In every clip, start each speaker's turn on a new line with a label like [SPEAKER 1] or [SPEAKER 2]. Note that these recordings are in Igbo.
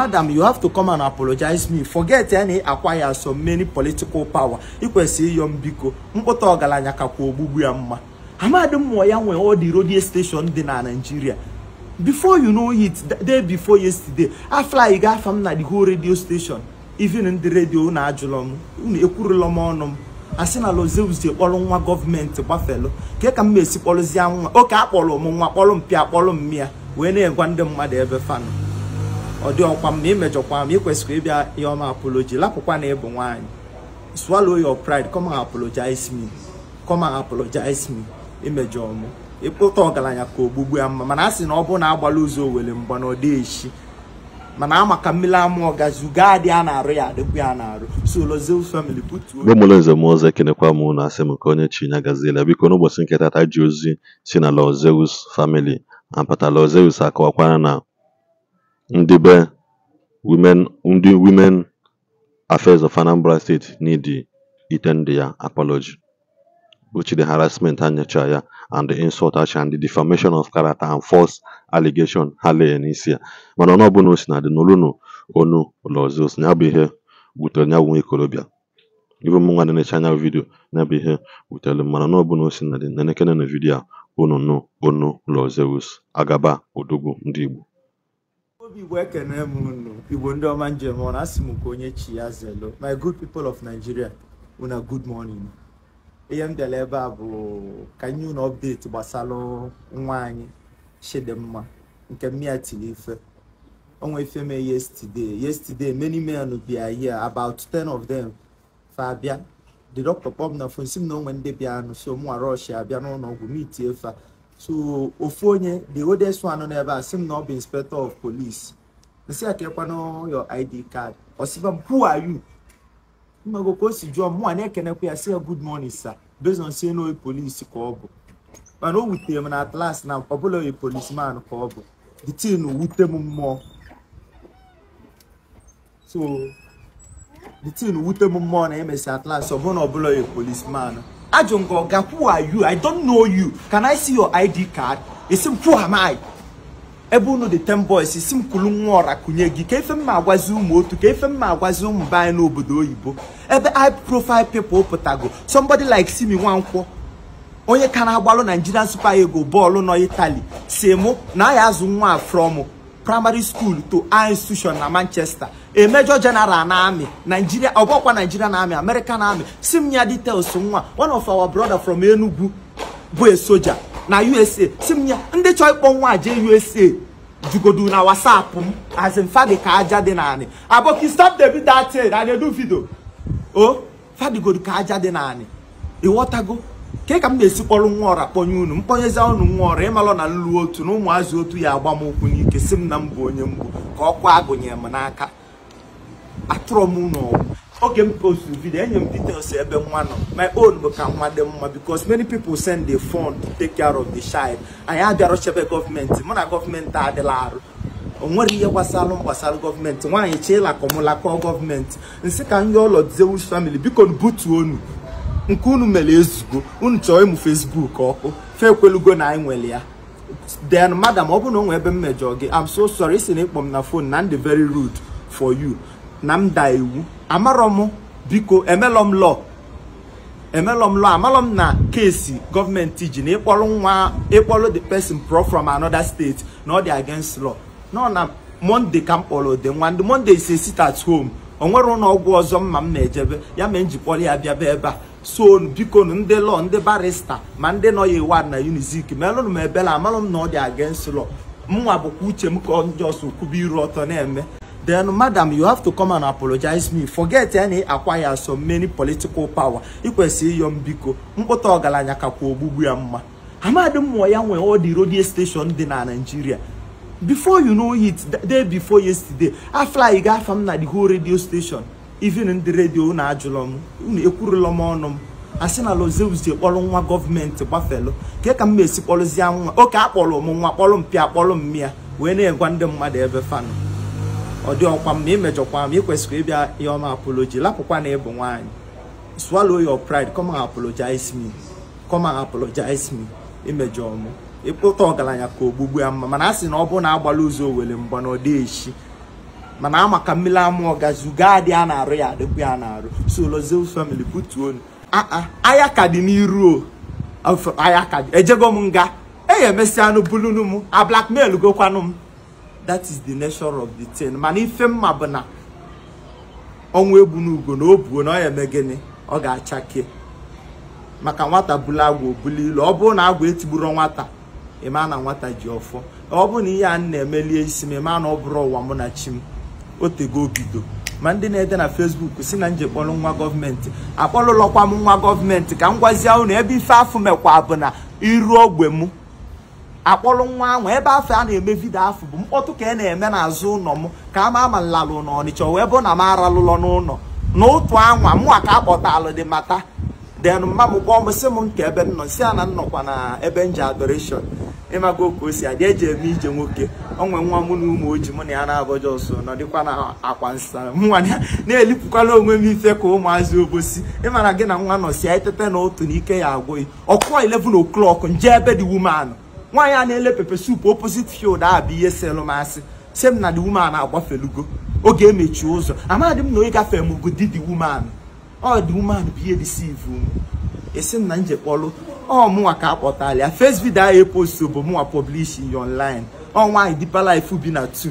[SPEAKER 1] madam you have to come and apologize me forget ya na ị acquire so many political power ikwesị ịyọ mbiko mkpụta ọgaranya kakwa ogbugbu ya mma amadi mmụọ ya nwe all the radio station dị na Nigeria before you know it day before yesterday afly gafa m na the whole radio station even ndị redio na ajụlọ m unu ekwurula m ọnụ m asị na lozezie kpọrọ nwa gọọmenti gbafelu nke ka m esi kpọrọzie nwa oke akpọrọ m nwa kpọrọ mpịa akpọrọ mmịa wee na-egwa ndị mmadụ ebe fanụ ọ dị ọkwa m na imejọkwa e m ikwesịkwa e ịbịa ihe ọma apology lapụkwa na ịbụ nwaanyị swallow your pride come and apologize me come and apologize me imejọ e m ịkpụta ọgaranya ka ogbugbu ya mma mana a sị na ọ bụrụ na agbala ụzọ owere mgba na ọ dị echi mana ama ka mmiri ọ gazi ugo adị a na-arụ ya adịkwu ya na-arụ so famili family butuo
[SPEAKER 2] mgbe mụrụ nze m ọzọ ekenekwa m na asị m ka onye chi nya gaziela biko n'ụbọchị nketa tata ji ozi si na lọzeus family apata lozeus akọwakwara na ndị be women ndị women affairs of Anambra State need iten ya apology which the harassment and ya and the insult and the defamation of character and false allegation ha lee n'isi ya mana ọnụ ọbụla o na dị n'olunu onu ụlọzi osi ya bụ ihe wutere nya nwa ikorobịa ibe m nwa na-enecha anya vidio ya bụ ihe wutere mana ọnụ ọbụla o na dị na na vidio a unu nu onu agaba odogwu ndị Igbo
[SPEAKER 1] obi igbo ekene m unu igbo ndị ọma njem ọ na asị m ka onye chi ya zelo my good people of nigeria una good morning ihe m dere ebe a bụ ka nye unu update gbasara nwa anyị mma nke mmịa tiri ife onwe ife mee yesterday yesterday many men bịa here about 10 of them fa abịa the doctor kpọm na fon si m na onwe ndị bịa anụ so mụnwa rush abịa n'ụlọ ọgwụ mitie fa so ofu the oldest one on ebe a not be inspector of police nsị akekwanụ your id card ọsịba m who are you mmego ka o si jụọ mụ a na-ekenekwa ya good morning sir based on sị na polisi ka ọ bụ mana o wutere m na atlas na ọbụla oyi polisman ka ọ bụ the tin wute m mmụọ so the tin wute m mmụọ na emesi atlas ọbụna ọbụla oyi polisman Ajongoga, who are you? I don't know you. Can I see your ID card? It's who am I? ebe unu dị ten boys isi m kwulu nwa ọra kụnye gị ka efe mma agwazi ụmụ otu ka efe mma agwazi ụmụ be anyị n'obodo oyibo ebe high profile people pụtago somebody like Simi Nwankwo onye ka na-agbalụ Nigerian Super Eagles bọọlụ nọ Italy si mụ na a azụ nwa primary school to high institution na manchester a major general na army nigeria ọgbọkwa nigerian army american army si details nwa one of our brother from enugu bụ a soja na usa si ndị chọọ ịkpọ nwa jee usa jugodu na whatsapp m as in fadi ka aja dị naanị aboki stop the video that thing i dey o oh, fadigodu aja dị naanị ịghọtago nke ka m na-esi kpọrọ nwa ọra kpọnye unu mkponyezi unu nwa ọra ịmalụ na nlu otu na ụmụazụ otu ya agba m ụkwụ n'ike si m na m bụ onye mgbu ka ọkwa agụnye m n'aka atụrụ m n'ọgwụ oge m postu vidio enye m details ebe nwa nọ my own bụ ka nwa dị mma because many people send the fund to take care of the child anyị abịara chebe gọọmenti mụ na gọọmenti adịla arụ o nwere ihe gbasalụ gbasara gọọmenti nwaanyị chee lakọmụlakọ gọọmenti nsị ka ndị ụlọ dizewu famili biko butuo unu nke unu mere ezugo unu chọọ ịmụ Facebook ọkụ fe ekwelugo na anyị nwere ya then madam ọ bụrụ na ọ nwee ebe mmejọ gị am so sorry isi na ịkpọ m na phone na ndị very rude for you na m da iwu amarọ m biko emelọ m lọ emelọ m lọ na kesi gọọmenti ji na ịkpọrọ nwa ịkpọrọ the person pro from another state na ọ dị against law nọ na monde ka m kpọrọ ụdị nwa ndị monde is a sit at home o nwere ụlọ ọgwụ ọzọ mma m na-ejebe ya mee njikpọrọ ya bịaba ebe a so biko ndị lọ ndị barista ma ndị nọ ya iwad na unizik melụnụ m ebela amalụ m na ọ dị against law mnwa bụkwa uche m ka njọs kwuba iru ọtọ na-eme then madam you have to come and apologize me forget any acquire so many political power ikwesịrị iyo m biko mkpụta ọgaranya kakwa ogbugbu ya mma amadi mmụọ ya nwee ọ redio steshọn station dị na Naịjirịa before you know it day before yesterday aflayi gafa m na the whole radio station even ndị redio na ajụlọ m unu ekwurula m ọnụ m asị na lozeuzie kpọrọ nwa gọọmenti gbafelu nke ka m ma-esi kpọrụzie nwa oke akpọrọ m nwa kpọrọ m pịa kpọrọ m mmịa wee na-egwa ndị mmadụ ebe fanụ ọ dị ọkwa m na imejọkwa m ịkwesịrị ịbịa ya ọma apology lapụkwa na ịbụ nwaanyị swallow your pride come and apologize me come apologize me imejọ ọmụ ịkpụta ọgaranya ka ogbugbu ya mma mana a sị na ọ bụrụ na agbala ụzọ owere mgba na ọ dị echi mana ama mmiri amụọ gazuga dị a na-arụ ya adịkwu ya na-arụ so Lozil family butuonu aya ka dị n'iru aya ka dị ejego m nga eya anụ bulunu m a blackmail gokwanụ m that is the nature of the thing mana ife mma bụ na ọnwa egbu n'ugo na o buo na ọ ya eme gịnị ọ ga-achake maka nwata bulu agwa obuli ilu ọ bụrụ na agwa etigburu nwata ịma na nwata ji ọfọ ọ bụrụ na ihe a na-emelie isi m ịma na ọ bụrụ ụwa mụ na chi m otego bido ma ndị na-ede na fesbuk si na nje kpọrọ nwa gọọmenti akpọlụlọkwa m nwa gọọmenti ka m gwazie unu ebe ife afọ mekwa bụ na iru ogbe m akpọrọ nwa ahụ ebe afọ a na-eme vidio afọ bụ mkpọtụ ka e na-eme n'azụ ụlọ m ka a ma ama nlalụ n'ọnịcha wee bụ na m aralụlọ n'ụlọ n'otu anwa mụnwa ka akpọtalụ dị mata den mma m kpọọ m si m nke ebe m nọ si a na nnọkwa na ebe ji adoration ịmaka oke o si adị eji eme ije nwoke onwe nwa mụ na ụmụ oji mụ na ya na-abọji ọsọ nọdịkwa na akwa nsa nwa na-elipụkwala onwe m ife ka ụmụazị obosi ịmara gị na nwa nọsi ya etete na otu na ike ya agwụghị ọkụọ 11 o'clock nje ebe dị woman nwaanyị a na-ele pepe sup opposite field bụ ihe selụ masị si m na dị woman agbafelugo oge emechi ụzọ amadị m na onye gafere m ogo dị dị ọ dị woman bụ ihe disivu m esi m na nje ọ oh, mụnwa ka akpọtala ya first video anyị postu bụ mụnwa pọblishin online ọ nwaanyị Deeper Life bi na 2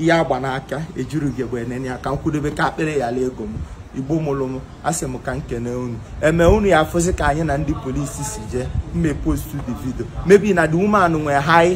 [SPEAKER 1] e ya gba n'aka ejirughi egbe enene ya ka m kwudobe ka akpịrị yala ego m igbo mụrụ m asị m ka nkene unu eme unu ya afụzi ka anyị na ndị polisi si jee mme postu the video maybe na the woman nwee high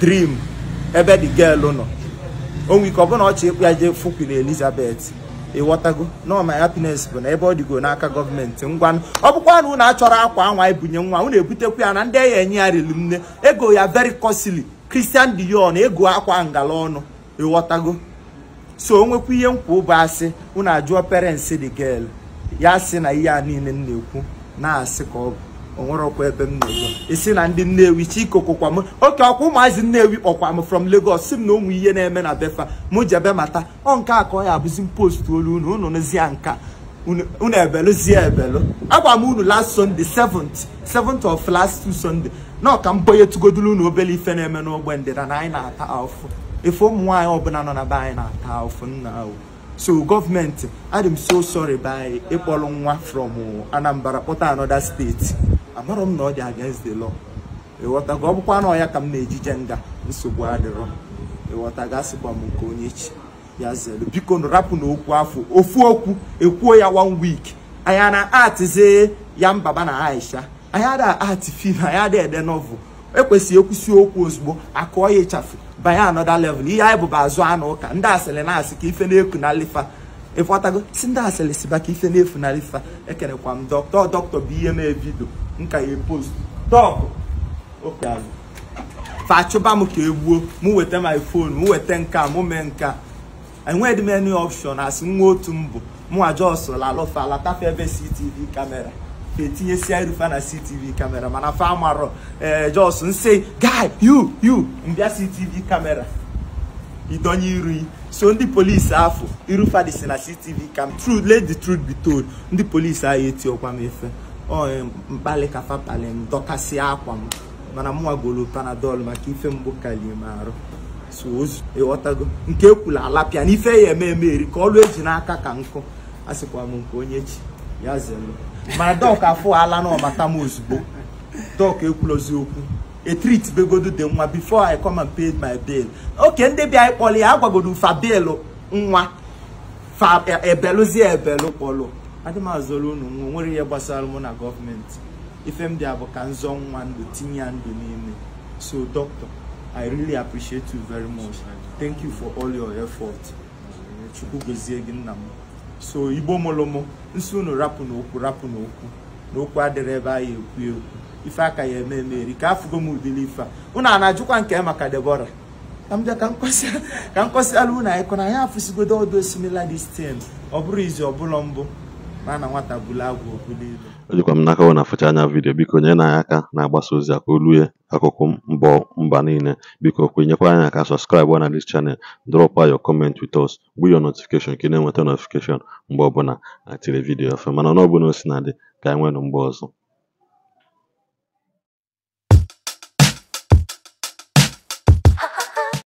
[SPEAKER 1] dream ebe the girl nọ onwe ike ọ bụna ọchị ịkpụ ya jee fụkwuru Elizabeth ịghọtago nọ hapines bụ na ebe ọ dịgo n'aka gọọmenti ngwanụ ọ bụkwa na unu achọrọ akwa anwa ibunye nwa unu ebutekwa ya na ndị enyi enye ya riri nne ego ya very costly Christian Dior ego akwa ngala ọnụ ịghọtago so onwekwa ihe nkwa ụbụ asị unu ajụọ parents de girl ya sị na ihe a niile m na-ekwu na-asị ka ọ bụ ọkwa ebe m na isi na ndị nnewi chikokokwa m oke ọkwa ụmụazị nnewi kpọkwa m from Lagos si m na ụmụ ihe na-eme na befa mụ jebe mata ọ nke a ka ọ ya abụzi post olu unu unu nụzie nka unu ebelụzie ebelụ agwa m unu last Sunday 7 of last two Sunday na ọka m tugodulu unu obere ife na-eme n'ogbe ndịda na anyị na-ata afụ efe ụmụ nwaanyị ọbụla nọ na be anyị na-ata afụ nna o so gọọmenti adị m so sorry by ịkpọrọ nwa from Anambra kpọta anoda steeti amarọ m na ọ dị against the law ịghọtago ọ bụkwa na ọ ka m na-ejije nga nsogbu adịrọ ịghọtago asịkwa m nke onye chi ya zelu biko rapụ na okwu afọ ofu okwu ekwuo ya one week anya na atizie ya mbaba na aisha anya da ati fim anya da ede novel ekwesịghị ekwusi okwu ozugbo akụọ ya ịchafụ banye anoda level ihe anyị bụba azụ anụ ụka ndị asịrị na-asị ka ife na-eku na lifa ịkpọtago e si ndị asịrị si baka ife na-efu e kere kwa m dọkịta dọkịta bụ ihe mee vidio nka ya post dọkụ fa fachụba m ke egbuo mụ weta my phone mụ weta nka mụ mee nka enweghị m any option asị nwa otu mbụ mụ aja ọsụla alụfa alatafe ebe CCTV kamera si etinyesia fa na ctv kamera mana fa amarọ ee jos nse guy you you mbịa CCTV kamera idonye iru so ndị polisi afọ Irufadi si na ctv kam tru let the truth be told ndị polisi ahụ ọkwa m efe ọ mkpali ka fapali m dọkasịa akwa m mana m nwagoro panadol maka ife mbụ kalie m arụ so ịghọtago e nke ekwula alapịa na ife ya eme eri ka ọlụ eji n'aka ka nkụ asịkwa m nke onye chi ya zelu mana dọk afụ ala na ọmata m ozugbo dọk ekwulozi okwu. a treat begodu dị nwa before i come and paid my bill oke ndị bịa anyị ya agwagodu fa bill nwa fa e, ebelu kpọlụ adịm unu nwa nwere ihe gbasara mụ na gọọmenti ife m dị bụ ka nzọ nwa ndụ tinye ya ndụ n'ime so doctor i really appreciate you very much thank you for all your effort chukwu gozie gị nna m so igbo mụlụ m unu rapụ n'okwu rapụ n'okwu n'okwu adịrị ebe anyị ekwu ekwu ife aka ya eme meri ka afụgo m udiri ife a ụnụ a na-ajụkwa nke maka Deborah ka m kọsịala unu anyị kọna anyị afụsigodo ọdụ dị destin ọ bụrụ izi ọbụla mbụ na nwata bụla agwụ okpulile
[SPEAKER 2] o jikwa m n'aka ọ na afụcha anya vidiyo biko nyere anyị aka na-agbasa ozi a ka olue akụkụ mbọ mba niile biko kwenyekwa anyị aka sọskraịbụ na dis chanel drọp ayo kọment wit us bụ yo notifikeshọn ka ị na-enweta notifikeshọn mgbe ọbụla atiri vidiyo ọfụma mana ọnụ ọbụla o si na dị ka anyị e nwere mgbe ọzọ